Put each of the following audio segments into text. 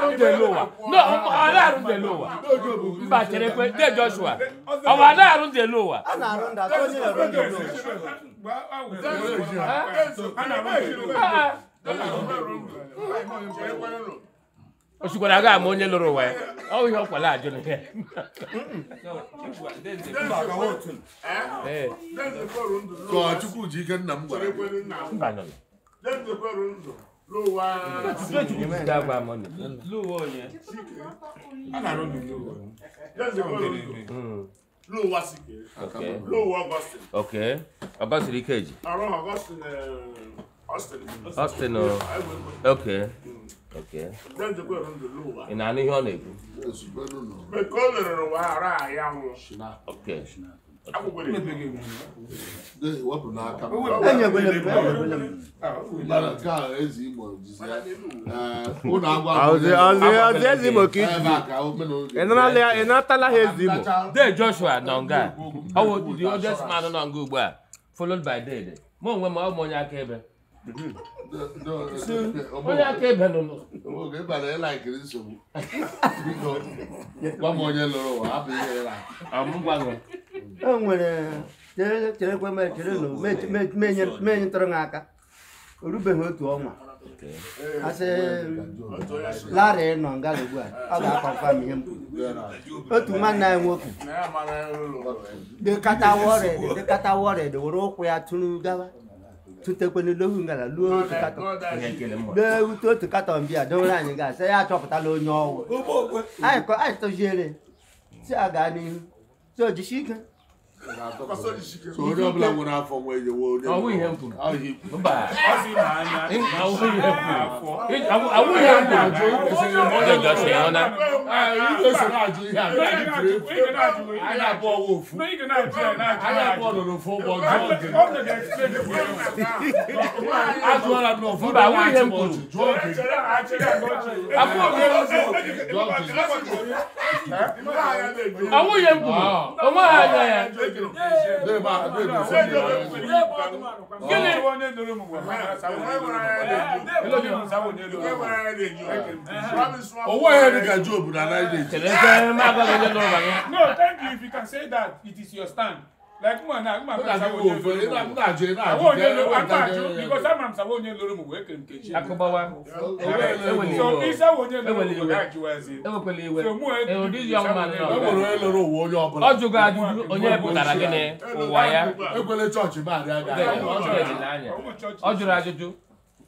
lower. No, ọla arụ the lower. Mba kwe de Joshua. Ọwa ala arụ the lower. A na-arụ ndị atọ onye aga ama onye lụrụ ụwa ya. Ọ ihe ọkwala ajụ na ihe. Ka Chukwu ji ike nna m gwara. ló wá dàgbà mọ ni. lówó yẹn aláró mi lówó yẹn lówó asigbe hmm. lówó augustin. ok augustin kejì. àwọn augustin okay eh, austin o oh. ok hmm. ok. ị na-anụ ihe ọ na-ekwu. ok. okay. okay. wepụ n'aka ha eze igbo de joshua nọ nga ọ nọ nga ugbu a followed by dede mụ onwe m ọ onye akaebe onye onye lụrụ ụwa hapụ o nwere cherekwe menye ntụrụ ha aka o rubeghị otu ọnwa asị nọ nga ugbu a ọ ga-akpakwa m ihe otu nwanne anyị nwoke dịkata wọrịd dịkata were ụkwụ ya tụrụ gawa tụtekwenu ngara luo otu katọn lee ute otu katọn bịa dowere anyị ga sị ya achọpụtala onye ọwụ anyị tụziere si a gaa n'ihu si ojisi ike so onye ọbụla nwere afọ nwe ejewe onye awụ ihe m kwuru mba awụ ihe m kwuru awụ ihe m kwuru onye gasị ya na ịga-esoro ajụ ihe a na-ajụ efu anya abụọ ọwa ofu anya abụọ nọ n'ofu ụgbọ jụọ oge ajụọla m n'ofu mba awụ ihe m kwuru jụọ oge abụọ oge jụọ oge awụ ihe m kwuru onwe ha anya ya owó ẹ̀ ní ká jóòbù náà láì dé. no thank you if you can say that it is your stand like man na agba msa wo nye lori mu agba ajo na ajo awo nye lori agba ajo because agba msa wo nye lori mu wee kente chi. akọbawa ewele so isa wo nye lori mu wee ajo ezi. ewekwele iwe ewu di young man na ọgbọ. ewere eloro owu onye ọbụla. ọ jụgo ajụjụ onye pụtara gịnị ụwa ya. ekwele chọọchị ma adị anya. ọ jụrụ ajụjụ.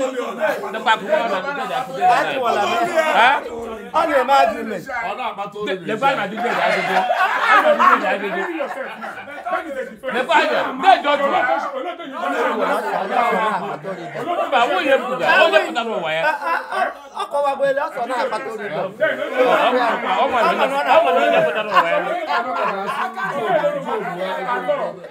nípa kúkú ọ̀nà kúkú ọ̀nà kúkú ọ̀nà. láti wọ̀ làbẹ́ ọ̀nà ẹ̀ máa dilẹ̀. ọ̀nà àbátó rẹ̀ lẹ́fà àná dídé ìdá gbogbo àná dídé ìdá gbogbo. lẹ́fà àná bẹ́ẹ̀ jọ jù wá. olùdókòwò àwọn òye bùdà àwọn òye bùdà ló wà yá. ọkọ wa gbé lọ́sọ̀ náà àbátó rẹ̀ lọ. ọmọ ìlú náà ọmọ ìlú náà bùdà ló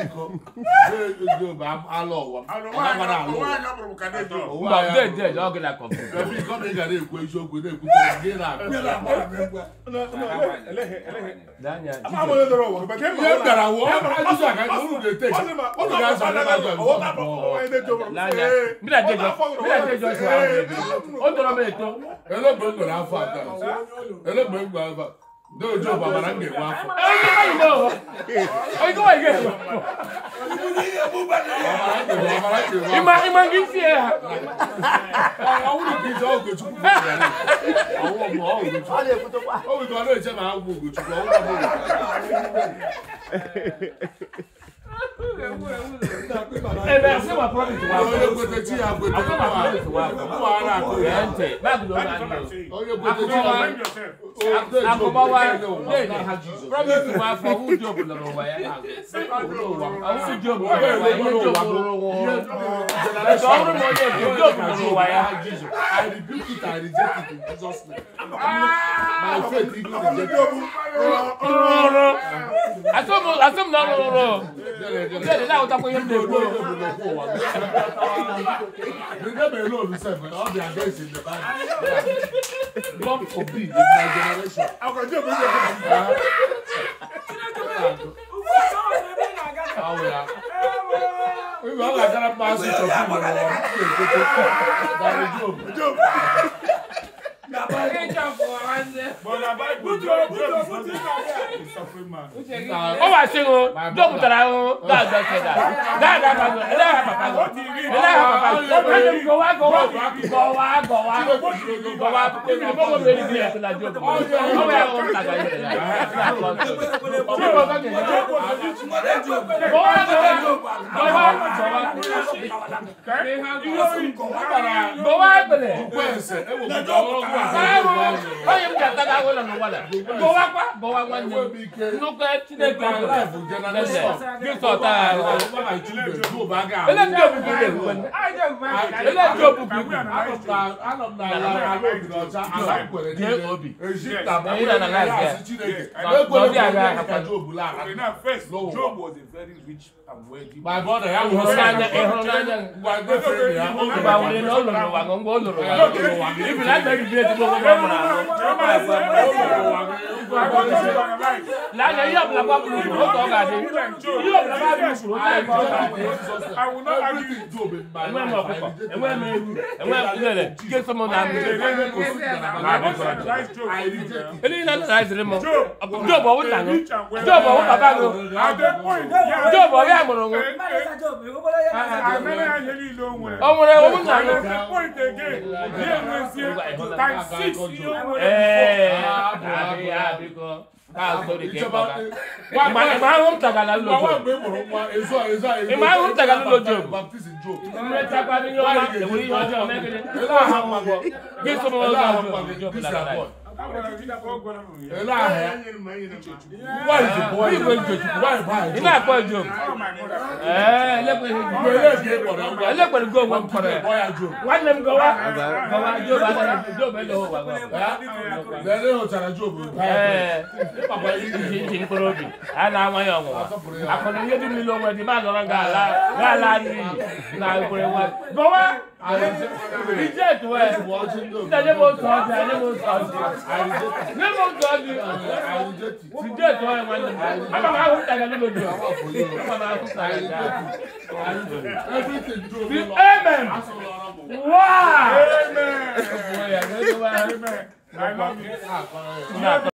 biko Yoruba alọ ụwa agbara alọ ụwa mba ndị ndị ọ gịla kọfụ ebe iko na ị gara ekwu eziokwu na-ekwu ka gị na-akpụ Elogbe mgbere afọ atọ. Elogbe mgbere afọ atọ. No, no, but I'm getting one. I know. I go again. Ima ima gisi ya. Àwọn olùdíje ọ̀gbìn tún kúrò sí ẹ̀rọ. Àwọn ọmọ ọ̀gbìn tún. Ọ̀lẹ̀ kútó pa. Ó wù kí wọn lóye jẹ́ màá gbogbo tún kọ́. Ó wù kí wọn lóye jẹ́ màá gbogbo tún kọ́. ẹbẹ ṣé wà promise wa ọyọ promise wa Get it out of your neighbor. We never alone, seven. All the address in the bag. God forbid, in my generation. I can do it. How are you? We were like that. Pass it to people. Job. Job. ó wà ṣe o dókun tara o dáadọ kẹta dáadọ pàtó ẹlẹ́yà pàpà lọ ẹlẹ́yà pàpà lọ ọ̀pẹ̀lẹ̀ gọ̀wá gọ̀wá gọ̀wá gọ̀wá gọ̀wá pẹ̀lú bọ́wọ́ bẹ̀rẹ̀ bí ẹ̀sìn lajú ọ̀pọ̀ ọ̀pẹ̀ ẹ̀rọ ọ̀tàgbà yẹn lẹ́yà gọ̀wá gọ̀wá gọ̀wá gọ̀wá pẹ̀lẹ̀. ọ̀pẹ̀ ẹ̀sẹ̀ ẹ̀wọ̀ gbọ̀wọ́ gbọ̀wọ́ wala no wala bọwakwa bọwakwa nne nnukwu etinye gbẹrẹ lẹsẹ victor taa ele ndị obubu ile egwu nne ele ndị obubu igwe jee obi ịda na na ike n'ọdị agha akwa my brother ya wụrụ n'anya ịhụrụ n'anya ngwa wụrụ n'ụlọ n'ụwa ngwa ọ lụrụ ya n'ụwa ibi na-adịghị bi ezigbo onwe ya mụrụ ahụ lálẹ́ yóò bila bá bulu o tọ́ ka di yóò bila bá bulu o tọ́ ka di. ẹ̀wọ̀n mi ọ̀kọ̀ ẹ̀wọ̀n mi ẹ̀wọ̀n mi lẹ̀lẹ̀ kí ẹ sọmọ náà mi. eléyìí náà nana ẹsẹ̀ mọ jọ̀bọ̀ o tàn jọ̀bọ̀ o bàbá mi jọ̀bọ̀ yà mọ̀rọ̀ wọn. ọmọ rẹ o mú nànú. times six yóò wọlé fún ọ àbí àbí kan báà sórí kẹ́kọ̀ọ́ bá. ìmọ̀ àwọn tàgàlà ló jò. ìmọ̀ àwọn tàgàlà ló jò. ìmọ̀ tàgàlà ló jò. ìmọ̀ tàgàlà ló jò. Ela é. Why is the boy? You going to why why? You not going to joke. Eh, let me go. Let Boy a joke. One let me go. Go a joke. Joke be joke. Eh. Let me go to joke. Eh. Papa you you you I reject where? Nígbàdé mo sọ ọ́ di, àdé mo sọ ọ́ di. Ní mo sọ ọ́ di. Reject where wọ́n ní. Bàbá máa kú tàgé ló lòdì. Bàbá máa kú tàgé ló lòdì. Amen. Wow. Amen. I love you.